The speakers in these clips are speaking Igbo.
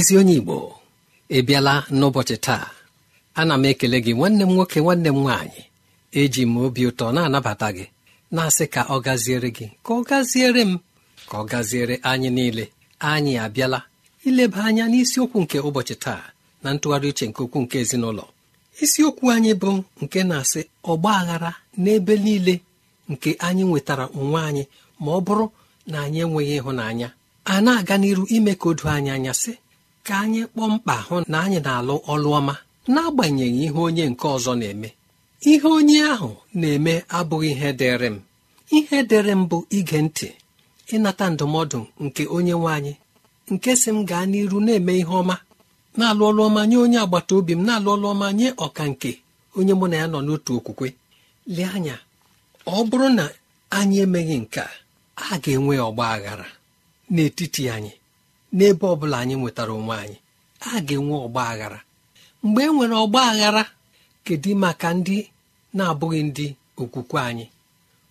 ezi onye igbo ebiala n'ụbọchị taa ana m ekele gị nwanne m nwoke nwanne m nwaanyị eji m obi ụtọ na-anabata gị na-asị ka ọ gaziere gị ka ọ gaziere m ka ọ gaziere anyị niile anyị abịala ileba anya n'isiokwu nke ụbọchị taa na ntụgharị uche nke okwu nke ezinụlọ isiokwu anyị bụ nke na-asị ọgba aghara n'ebe niile nke anyị nwetara onwe anyị ma ọ bụrụ na anyị enweghị ịhụnanya a na-aga n'iru ime ka o anyị anya sị ka anyị kpọọ mkpa hụ na anyị na-alụ ọlụ ọma n'agbanyeghị ihe onye nke ọzọ na-eme ihe onye ahụ na-eme abụghị ihe dịrị m ihe dịrị m bụ ige ntị ịnata ndụmọdụ nke onye nwe anyị nke si m gaa n'iru na-eme ihe ọma na-alụ ọlụ ọma nye onye agbata obi m na-alụ ọlụ ọma nye ọka nke onye mụ na ya nọ n'otu okwukwe lee anya ọ bụrụ na anyị emeghị nke a ga-enwe ọgba aghara n'etiti anyị n'ebe ọ bụla anyị nwetara onwe anyị a ga-enwe ọgba aghara mgbe e nwere ọgba aghara kedu maka ndị na-abụghị ndị okwukwe anyị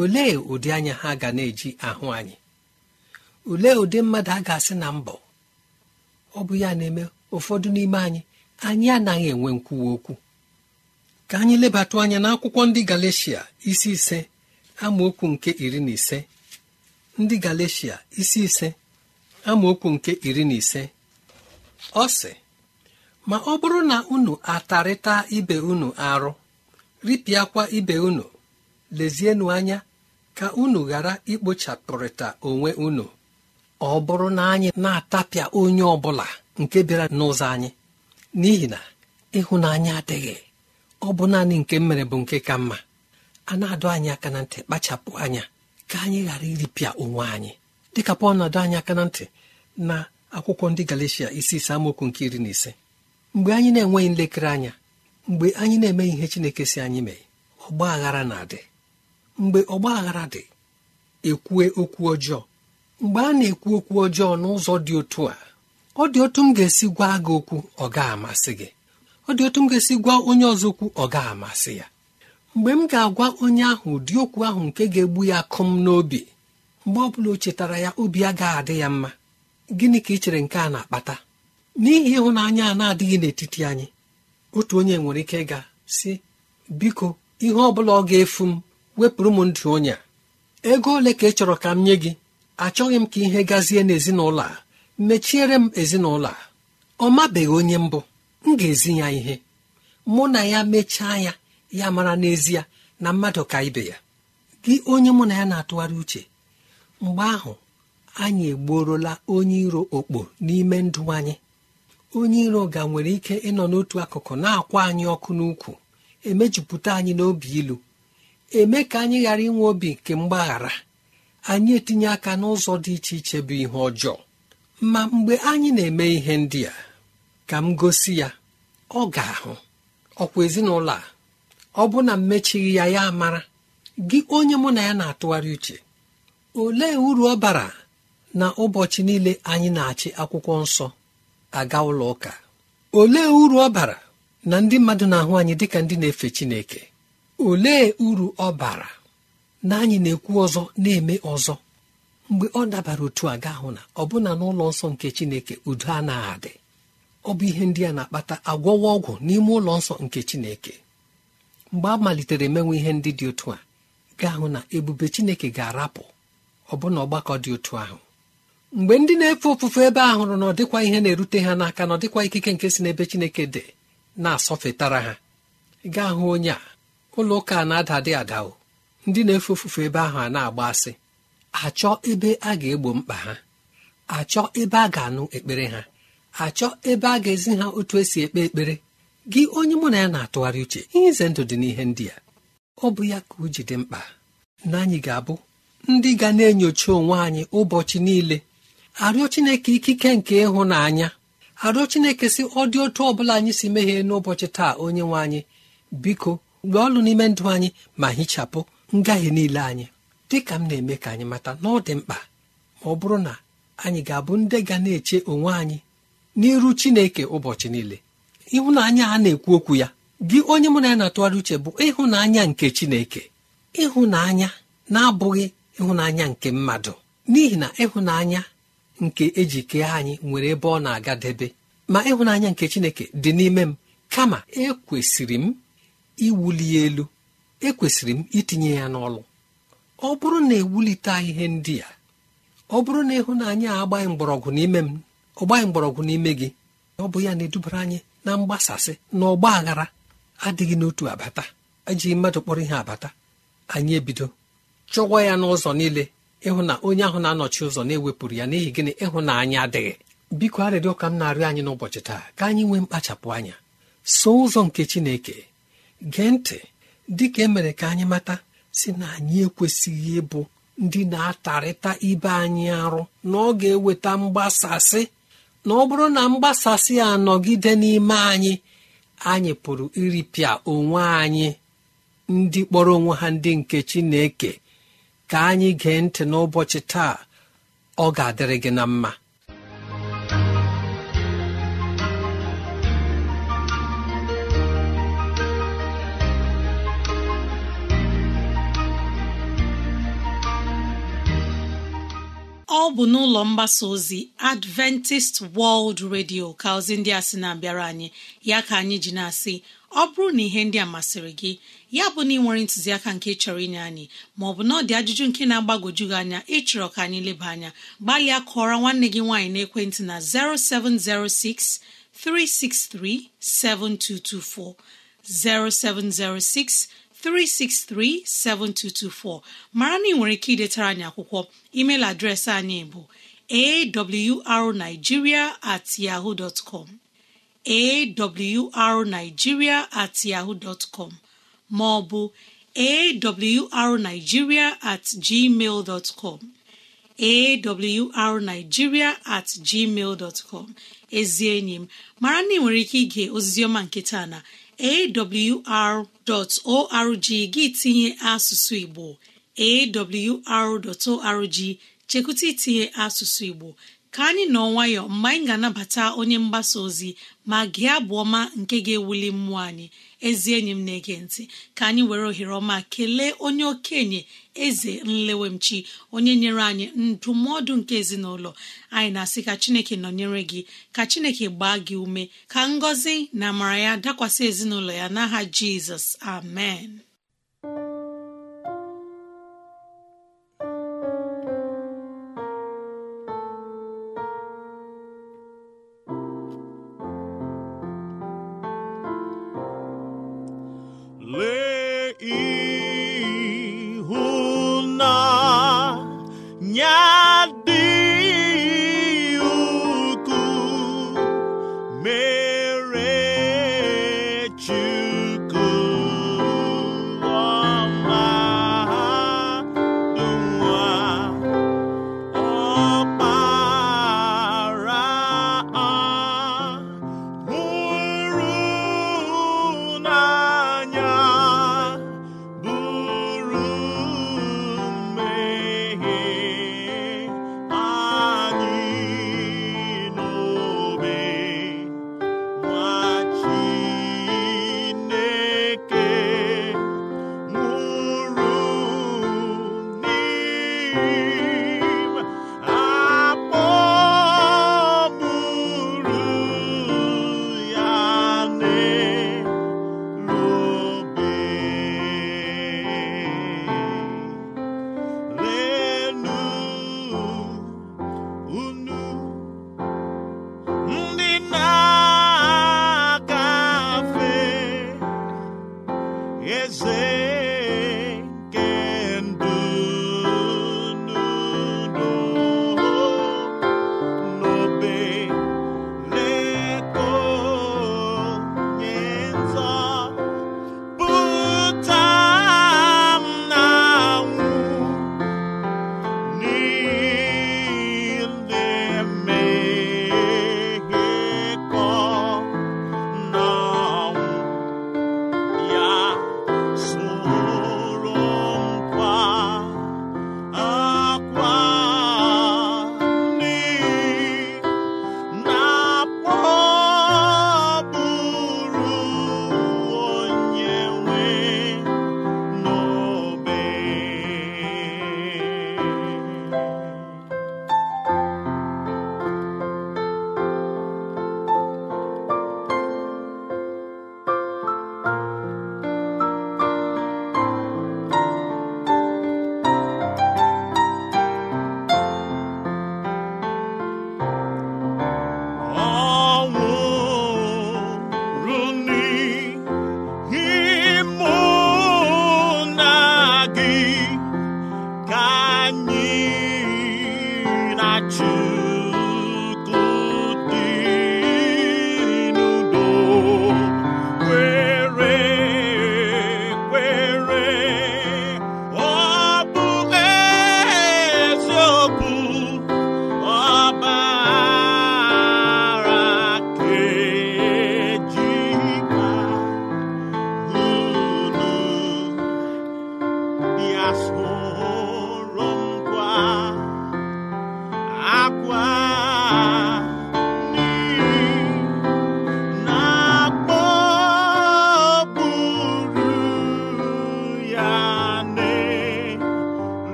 olee ụdị anya ha ga na-eji ahụ anyị olee ụdị mmadụ a ga-asị na mbọ ọ bụ ya na-eme ụfọdụ n'ime anyị anyị anaghị enwe nkwuwa okwu ka anyị lebatụ anya n'akwụkwọ ndị galecia isi ise amaokwu nke iri na ise ndị galecia isi ise amaokwu nke iri na ise ọ sị ma ọ bụrụ na unu atarịta ibe unu arụ ripịakwa ibe unu lezienụ anya ka unu ghara ikpochapụrịta onwe unu ọ bụrụ na anyị na-atapịa onye ọ bụla nke bịara n'ụzọ anyị n'ihi na ịhụnanya adịghị ọ bụ naanị nke mere bụ nke ka mma a na-adọ anyị aka na ntị kpachapụ anya ka anyị ghara iripịa onwe anyị dịka pọl na-adọ anyị aka na ntị na akwụkwọ ndị galecia isi ise amaokwu nke iri na ise mgbe anyị na-enweghị nlekere anya mgbe anyị na-emeghị ihe chineke si anyị mee ọgba aghara na-adị mgbe ọgba aghara dị ekwue okwu ọjọọ mgbe a na-ekwu okwu ọjọọ n'ụzọ dị otu a ọ dị otu m ga-esi gwa gị okwu ọ ga amasị gị ọ dị otu m ga-esi gwa onye ọzọ okwu ọ ga amasị ya mgbe m ga-agwa onye ahụ ụdị okwu ahụ nke ga-egbu ya akụm n'obi mgbe ọ bụla o chetara ya obi ga adị ya mma gịnị ka ị chere nke a na-akpata n'ihi ịhụnanya a na-adịghị n'etiti anyị otu onye nwere ike ịga si biko ihe ọ bụla ọ ga-efu m wepụrụ m ndụ onye ego ole ka ị chọrọ ka m nye gị achọghị m ka ihe gazie n'ezinụlọ a mechiere m ezinụlọ a ọ mabeghị onye mbụ m ga-ezi ya ihe mụ na ya mechaa ya ya mara n'ezie na mmadụ ka ibe ya gị onye mụ na ya na-atụgharị uche mgbe ahụ anyị egbuorola onye iro okpo n'ime ndụ anyị onye iro ga nwere ike ịnọ n'otu akụkụ na-akwa anyị ọkụ n'ukwu emejupụta anyị n'obi ilu eme ka anyị ghara inwe obi nke mgbaghara anyị etinye aka n'ụzọ dị iche iche bụ ihe ọjọọ ma mgbe anyị na-eme ihe ndị a ka m gosi ya ọ ga-ahụ ọkwa ezinụlọ a ọ bụ na mmechighị ya ya mara gị onye mụ na ya na-atụgharị uche olee uru ọ bara na ụbọchị niile anyị na-achị akwụkwọ nsọ aga ụlọ ụka olee uru ọ bara na ndị mmadụ na-ahụ anyị dịka ndị na-efe Chineke olee uru ọ bara na anyị na-ekwu ọzọ na-eme ọzọ mgbe ọ dabara otu a gaahụ na ọbụna n'ụlọ nsọ nke Chineke udo anaghị adị ọ bụ ihe ndị a na-akpata agwọwa ọgwụ n'ime ụlọ nsọ nke Chineke mgbe a malitere emenwe ihe ndị dị otu a gaahụ na ebube Chineke ga-arapụ ọbụna ọgbakọ dị otu ahụ mgbe ndị na-efe ofufe ebe ahụrụ na ọ dịkwa ihe na-erute ha n'aka na ọ dịkwa ikike nke si n'ebe chineke dị na-asọfetara ha gaa hụ onye a ụlọ ụka na-ada adị adao ndị na-efe ofufe ebe ahụ a na-agba asị achọ ebe a ga-egbo mkpa ha achọ ebe a ga-anụ ekpere ha achọ ebe a ga-ezi ha otu esi ekpe ekpere gị onye mụ na ya na-atụgharị uche ihe ize ndụ dị n'ihe ndị a ọ bụ ya ka o ji dị mkpa na anyị ga-abụ ndị ga na-enyocha onwe anyị ụbọchị niile arịọ chineke ikike nke ịhụnanya arịọ chineke si ọ dị otu ọ bụla anyị si meghee n'ụbọchị taa onye nwe anyị biko mgbe ọlụ n'ime ndụ anyị ma hichapụ ngahie niile anyị dị ka m na-eme ka anyị mata na ọ dị mkpa ma ọ bụrụ na anyị ga-abụ ndị ga na-eche onwe anyị n'iru chineke ụbọchị niile ịhụnanya a na-ekwu okwu ya gị onye mụ na ya na-atụgharị uche bụ ịhụnanya nke chineke ịhụnanya na-abụghị ịhụnanya nke mmadụ n'ihi na ịhụnanya nke eji kee anyị nwere ebe ọ na-agadebe ma ịhụnanya nke chineke dị n'ime m kama ekwesịrị m iwuli elu ekwesịrị m itinye ya n'ọlụ ọ bụrụ na ewulite ihe ndị a ọ bụrụ na ịhụnanya a agbaghị mgbọrọgwụ n'ime m ọ gbaghị mgbọrọgwụ n'ime gị ọ bụ ya na-edubara anyị na mgbasasị na ọgba aghara adịghị n'otu abata ejighị mmadụ kpọrọ ihe abata anyị ebido chụwa ya n'ụzọ niile ịhụ na onye ahụ na-anọchi ụzọ na-ewepụrụ ya n'ihi gịnị ịhụnanya adịghị biko arịrịọ ka m na-arịọ anyị n'ụbọchị taa ka anyị nwee mkpachapụ anya so ụzọ nke chineke gee ntị dịka emere ka anyị mata si na anyị ekwesịghị ịbụ ndị na-atarịta ibe anyị arụ na ọ ga-eweta mgbasasị na ọ bụrụ na mgbasasị a nọgide n'ime anyị anyị pụrụ iripịa onwe anyị ndị kpọrọ onwe ha ndị nke chineke ka anyị gee ntị n'ụbọchị taa ọ ga-adịrị gị na mma ọ bụ n'ụlọ mgbasa ozi adventist world radio ka ozi ndị a sị na-abịara anyị ya ka anyị ji na-asị ọ bụrụ na ihe ndị a masịrị gị ya bụ na ị nwere ntụziaka nke chọrọ inye anyị ma maọbụ na ọ dị ajụjụ nke na-agbagoju gị anya ịchọrọ ka anyị leba anya gbalịa kọọrọ nwanne gị nwaanyị n'ekwentị na 0706 363 7224 0706 363 7224 mara na ị nwere ike idetara anyị akwụkwọ email adreesị anyị bụ awrnigeria at at yaho maọbụ ọ at gmail dot com awrnigeria at gmail dot com ezi enyi m mara na ị nwere ike ige ozizioma nke taa na awr.org gị tinye asụsụ igbo awr.org chekwụta itinye asụsụ igbo ka anyị nọ nwayọọ, mgbe anyị ga-anabata onye mgbasa ozi ma gị abụ ọma nke ga-ewuli mmụọ anyị ezi enyi m na-ege ntị ka anyị were ohere ọma kelee onye okenye eze nlewemchi onye nyere anyị ndụmọdụ nke ezinụlọ anyị na-asị ka chineke nọnyere gị ka chineke gbaa gị ume ka ngọzi na amara ya dakwasị ezinụlọ ya n'aha jizọs amen E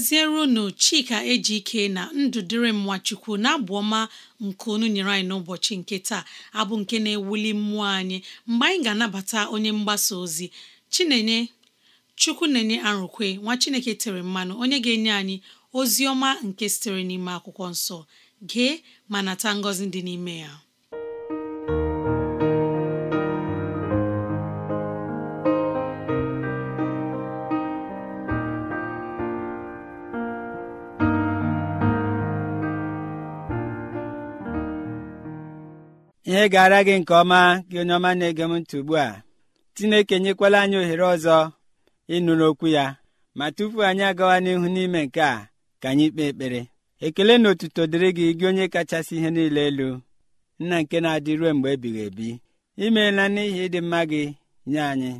ngọzierunu chika ike na ndụ dịrị m nwachukwu na abụ ọma nke unu nyere anyị n'ụbọchị nke taa abụ nke na-ewuli mmụọ anyị mgbe anyị ga-anabata onye mgbasa ozi chinenye chukwu na-enye arụkwe nwa chineke tere mmanụ onye ga-enye anyị ozi ọma nke sitere n'ime akwụkwọ nsọ gee ma nata ngọzi dị n'ime ya ihe gara gị nke ọma gị onye ọma na-ege m ntị ugbu a chineke nyekwala anyị ohere ọzọ ịnụ n'okwu ya ma tupu anyị agawa n'ihu n'ime nke a ka anyị kpee ekpere ekele na otuto dịrị gị gị onye kachasị ihe niile elu nna nke na-adị ruo mgbe ebighị ebi imeela n'ihi ịdị mma gị nye anyị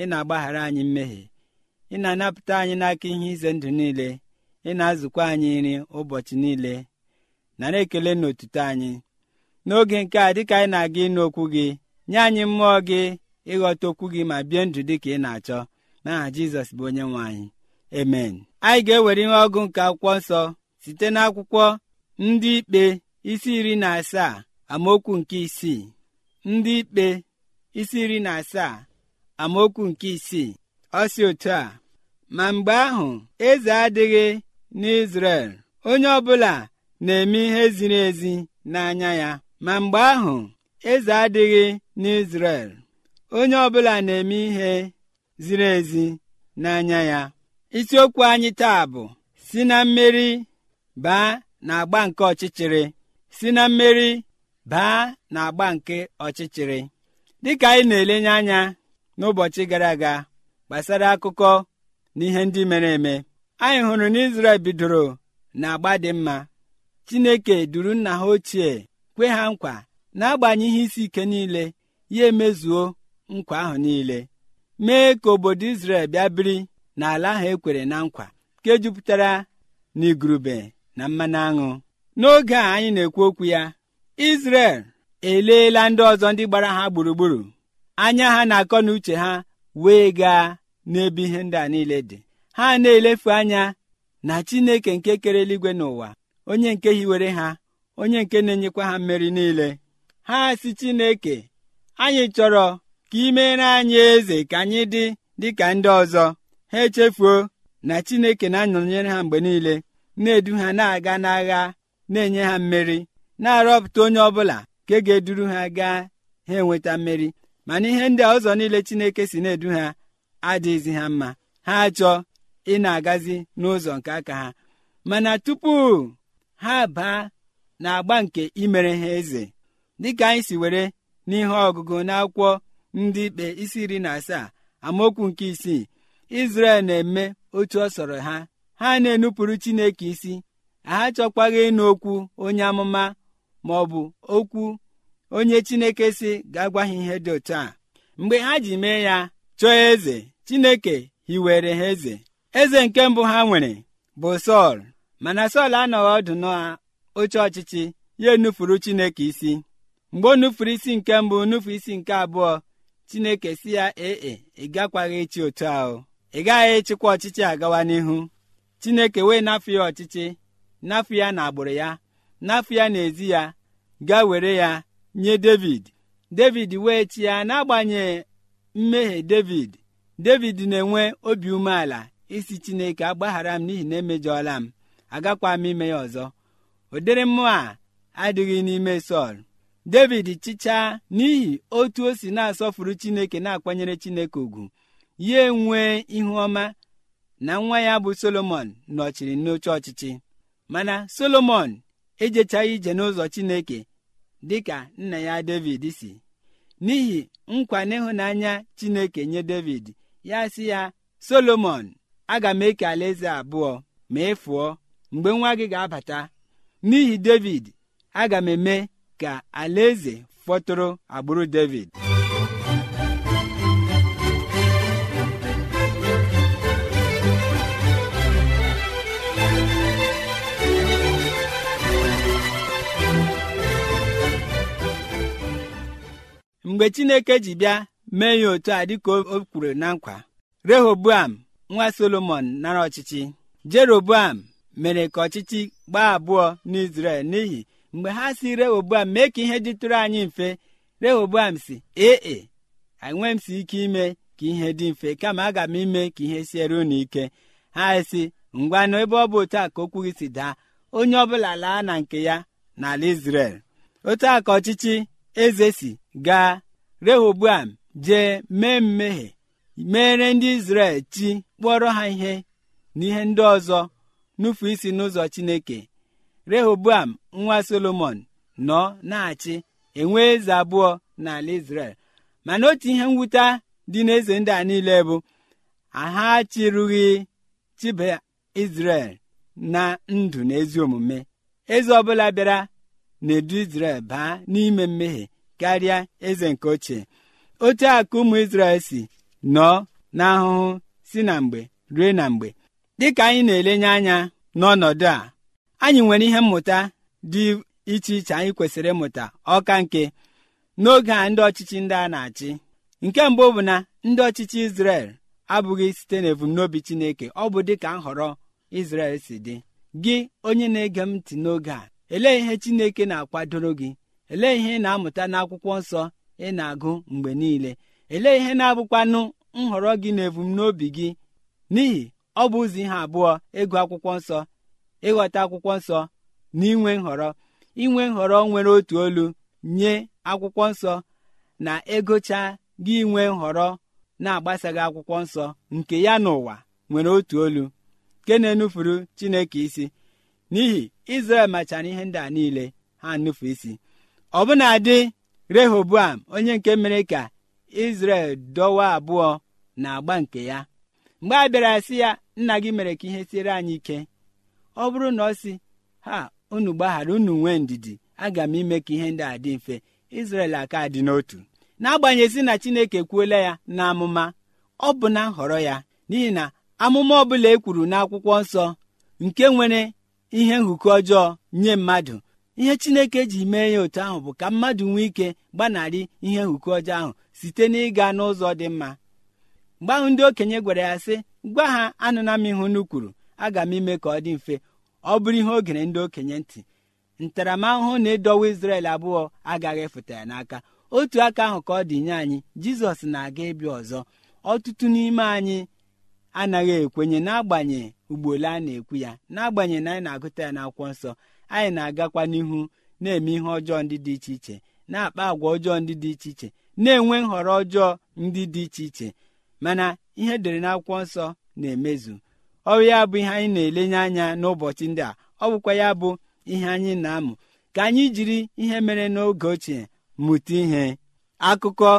ị na-agbaghara anyị mmehie ị na-anapụta anyị n'aka ihe ize ndụ niile ị na-azụkwa anyị nri ụbọchị niile nara ekele na otuto anyị n'oge nke a dịka anyị na-aga ịnụ okwu gị nye anyị mmụọ gị ịghọta okwu gị ma bie ndụ dị ka ị na-achọ n'aha jizọs bụ onye nwe anyị emen anyị ga-ewere ihe ọgụ nke akwụkwọ nsọ site n'akwụkwọ ndị ikpe isi iri na asaa amaokwu nke isii ndị ikpe isi iri na asaa amaokwu nke isii ọ si otu a ma mgbe ahụ eze adịghị n'izrel onye ọbụla na-eme ihe ziri ezi n'anya ya ma mgbe ahụ eze adịghị n'Izrel onye ọbụla na-eme ihe ziri ezi n'anya ya isiokwu anyị taa bụ si na mmeri baa na agba nke ọchịchịrị si na mmeri baa na agba nke ọchịchịrị dịka anyị na-elenye anya n'ụbọchị gara aga gbasara akụkọ na ihe ndị mere eme anyị hụrụ na Izrel bidoro na agba dị mma Chineke duru nna ha ochie kwe ha nkwa na-agbanyeghị isi ike niile ya emezuo nkwa ahụ niile mee ka obodo Izrel bịa biri n'ala ahụ ekwere na nkwa nke jupụtara n'igurube na mmanụ aṅụ n'oge a anyị na-ekwu okwu ya Izrel eleela ndị ọzọ ndị gbara ha gburugburu anya ha na-akọ na uche ha wee gaa n'ebe ihe ndị a niile dị ha na-elefu anya na Chineke nke kere eluigwe n'ụwa onye nke hiwere ha onye nke na-enyekwa ha mmeri niile ha si Chineke anyị chọrọ ka ị anyị eze ka anyị dị dịka ndị ọzọ ha echefuo na Chineke na-anọnyere ha mgbe niile na-edu ha na-aga n'agha na-enye ha mmeri na-arọpụta onye ọ ọbụla ka e ga-eduru ha gaa ha enweta mmeri mana ihe ndị ọzọ niile Chineke si na-edu ha adịghịzi ha mma ha achọ ị na-agazi n'ụzọ nke aka ha mana tupu ha baa na agba nke imere ha eze dịka anyị si were n'ihe ọgụgụ n'akwụkwọ ndị ikpe isi iri na asaa amaokwu nke isii izrel na-eme otu ọ sọrọ ha ha na-enupụrụ chineke isi ha chọkwaghị ịnụ okwu onye amụma ma ọ bụ okwu onye chineke si ga-agwa ha ihe dị otu a mgbe ha ji mee ya chọọ eze chineke hiwere ha eze eze nke mbụ ha nwere bụ sọl mana sọl anọghị ọdụ oche ọchịchị ya enufuru chineke isi mgbe o nufuru isi nke mbụ nufu isi nke abụọ chineke si ya ee e, ị gakwaghị ịchị otu ahụ ị gaghị ịchịkwa ọchịchị agawa n'ihu chineke wee nafu ya ọchịchị nafu ya na agbụrụ ya nafu ya n'ezi ya gaa were ya nye david david wee chi ya n'agbanyeghị mmehie david david na-enwe obi umeala isi chineke agbaghara m n'ihi na emejọọla m agakwa m ime ya ọzọ ụdịrị mmụọ a adịghị n'ime sọl david chịchaa n'ihi otu o si na-asọfuru chineke na-akwanyere chineke ugwu ya enwee ihu ọma na nwa ya bụ solomon nọchiri n'oche ọchịchị mana solomon ejechaghị ije n'ụzọ chineke dịka nna ya david si n'ihi nkwa n'ịhụnanya chineke nye david ya sị ya solomon aga m eke alaeze abụọ ma ị fụọ mgbe nwa gị ga-abata n'ihi david aga m eme ka alaeze fọtụrụ agbụrụ david mgbe chineke ji bịa mee ya otu a dịka o kwuru na nkwa rehoboam nwa solomon nara ọchịchị jeroboam mere ka ọchịchị gbaa abụọ n'izrel n'ihi mgbe ha si rehoboam mee ka ihe dịtụrụ anyị mfe rehoboam si ee e, enwe m si ike ime ka ihe dị mfe kama aga m ime ka ihe siere unu ike ha si ngwa ebe ọ bụ otu a ka okwu gị si daa onye ọbụla laa na nke ya n'ala izrel otu a ka ọchịchị eze si gaa rehoboam jee mee mmehie meere ndị izrel chi kpọrọ ha ihe ihe ndị ọzọ nufu isi n'ụzọ chineke rehoboam nwa solomon nọ na-achị enwe eze abụọ n'ala israel mana otu ihe mwute dị n'eze ndị a niile bụ aha chịrụghị chiba israel na ndụ na ezi omume eze ọbụla bịara na-edu israel baa n'ime mmehie karịa eze nke ochie otu akụ ụmụ israel si nọọ n'ahụhụ si na mgbe rue na mgbe dịka anyị na-elenye anya n'ọnọdụ a anyị nwere ihe mmụta dị iche iche anyị kwesịrị ịmụta ọka nke n'oge a ndị ọchịchị ndị a na-achị nke mbụ bụ na ndị ọchịchị Izrel abụghị site n'ebumnobi Chineke ọ bụ dịka nhọrọ Izrel si dị gị onye na-ege m ntị n'oge a elee ihe Chineke na-akwadoro gị elee ihe ị na-amụta n'akwụkwọ nsọ ị na-agụ mgbe niile elee ihe na-abụkwanụ nhọrọ gị na ebumnobi gị n'ihi ọ bụ ụzọ ihe abụọ ịgụ akwụkwọ nsọ ịghọta akwụkwọ nsọ na inwe nhọrọ inwe nhọrọ nwere otu olu nye akwụkwọ nsọ na ịgụcha gị inwe nhọrọ na-agbasaghị akwụkwọ nsọ nke ya n'ụwa nwere otu olu nke na-enufuru chineke isi n'ihi izrel machara ihe ndị a niile ha nufu isi ọbụna dị rehoboam onye nke mere ka izrel dọwa abụọ na agba nke ya mgbe a bịara sị ya nna gị mere ka ihe siere anyị ike ọ bụrụ na ọ sị ha unu gbaghara unu nwee ndidi aga m ime ka ihe ndị a dị mfe Izrel aka dị n'otu n'agbanyeghị na Chineke kwuola ya na amụma ọ bụ na nhọrọ ya n'ihi na amụma ọ bụla e kwuru n'akwụkwọ nsọ nke nwere ihe nhụkọ ọjọọ nye mmadụ ihe Chineke ji mee ya otu ahụ bụ ka mmadụ nwee ike gbanarị ihe nhụkọ ọjọọ ahụ site n'ịga n'ụzọ dị mma mgbe ahụ ndị okenye gwara ya sị gwa ha anụna m ihu unu kwuru aga m ime ka ọ dị mfe ọ bụrụ ihe o gere ndị okenye ntị ntaramahụhụ na ịdọwa isrel abụọ agaghị efuta ya n'aka otu aka ahụ ka ọ dị nye anyị Jizọs na-aga ịbịa ọzọ ọtụtụ n'ime anyị anaghị ekwenye n'agbanye ugboole a na-ekwu ya n'agbanye na anyị na-agụta ya n'akwụkwọ nsọ anyị na-agakwa n'ihu na-eme ihe ọjọọ ndị dị iche iche na-akpa agwa ọjọọ ndị dị iche iche na-enwe nhọrọ ọjọọ ndị dị iche iche mana ihe e dere n'akwụkwọ nsọ na-emezu ọrụ ya bụ ihe anyị na-elenye anya n'ụbọchị ndị a ọ bụkwa ya bụ ihe anyị na-amụ ka anyị jiri ihe mere n'oge ochie mụta ihe akụkọ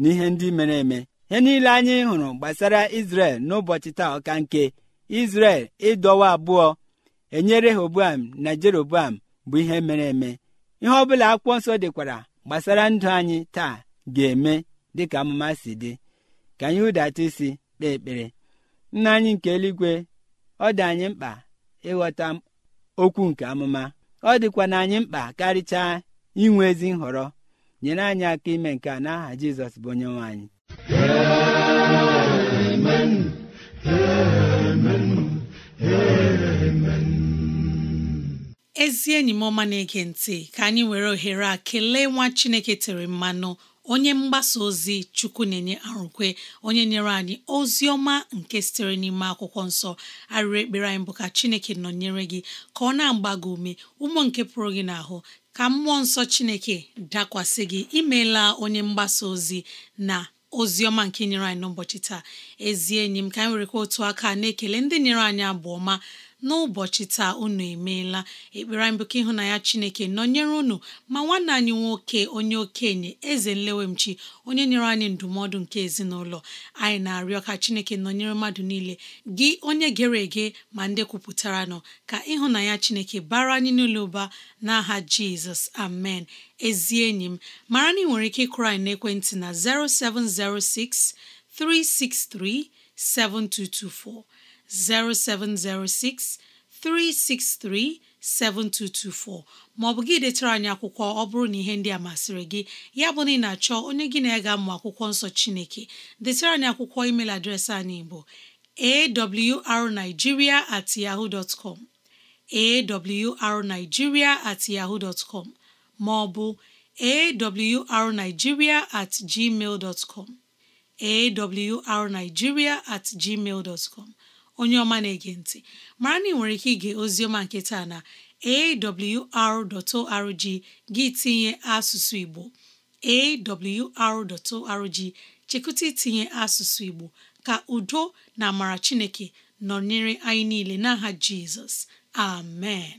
na ihe ndị mere eme ihe niile anyị hụrụ gbasara Izrel n'ụbọchị taa ọka nke Izrel ịdọwa abụọ enyere Rehoboam na Jeroboam bụ ihe mere eme ihe ọ bụla akwụkwọ nsọ dịkwara gbasara ndụ anyị taa ga-eme dịka amụma si dị ka anyị hụdata isi kpee ekpere nna anyị nke eluigwe ọ dị anyị mkpa ịghọta okwu nke amụma ọ dịkwa na anyị mkpa karịchaa inwe ezi nhọrọ nyere anyị aka ime nke a n'aha Jizọs bụ onye nwe anyị ezi enyi m ọma na-ege ntị ka anyị were ohere a kelee nwa Chineke tere mmanụ onye mgbasa ozi chukwu na-enye arụkwe onye nyere anyị ozi ọma nke sitere n'ime akwụkwọ nsọ arịrị ekpere anyị bụ ka chineke nọnyere gị ka ọ na-agba gị ume ụmụ nke pụrụ gị n'ahụ ka mmụọ nsọ chineke dakwasị gị imeela onye mgbasa ozi na ozi ọma nke nyere anyị n'ụbọchị taa ezi enyi ka anyị werekwa otu aka na-ekele ndị nyere anyị abụ ọma n'ụbọchị taa unu emeela ekpere anyị bụ ka ịhụnanya Chineke nọnyere unu ma nwanne anyị nwoke onye okenye eze nlewemchi onye nyere anyị ndụmọdụ nke ezinụlọ anyị na-arịọ ka Chineke nọnyere mmadụ niile gị onye gere ege ma ndị kwupụtara nọ ka ịhụnanya Chineke bara anyị n'ụlọ ụba n'aha Jizọs amen ezi enyi m mara na ị nwere ike ịkụrụ anyị n'ekwentị na 0706 363 7224 0706 363 7224 maọbụ gị detara anyị akwụkwọ ọ bụrụ na ihe ndị a masịrị gị ya bụ na ị na-achọ onye gị na-ega mmụ akwụkwọ nsọ Chineke detara anyị akwụkwọ email adreesị anyị bụ arigiria at yahoo dot com awrnigeria at yahoo dot maọbụ awrnigeria at gmail com awrnigeria at gmail dot com onye ọma na-ege ntị mara na ị nwere ike ige ozioma nke taa na awr.org gị tinye asụsụ Igbo awr.org chekụta itinye asụsụ Igbo ka udo na amara Chineke nọnyere anyị niile n'aha Jizọs amen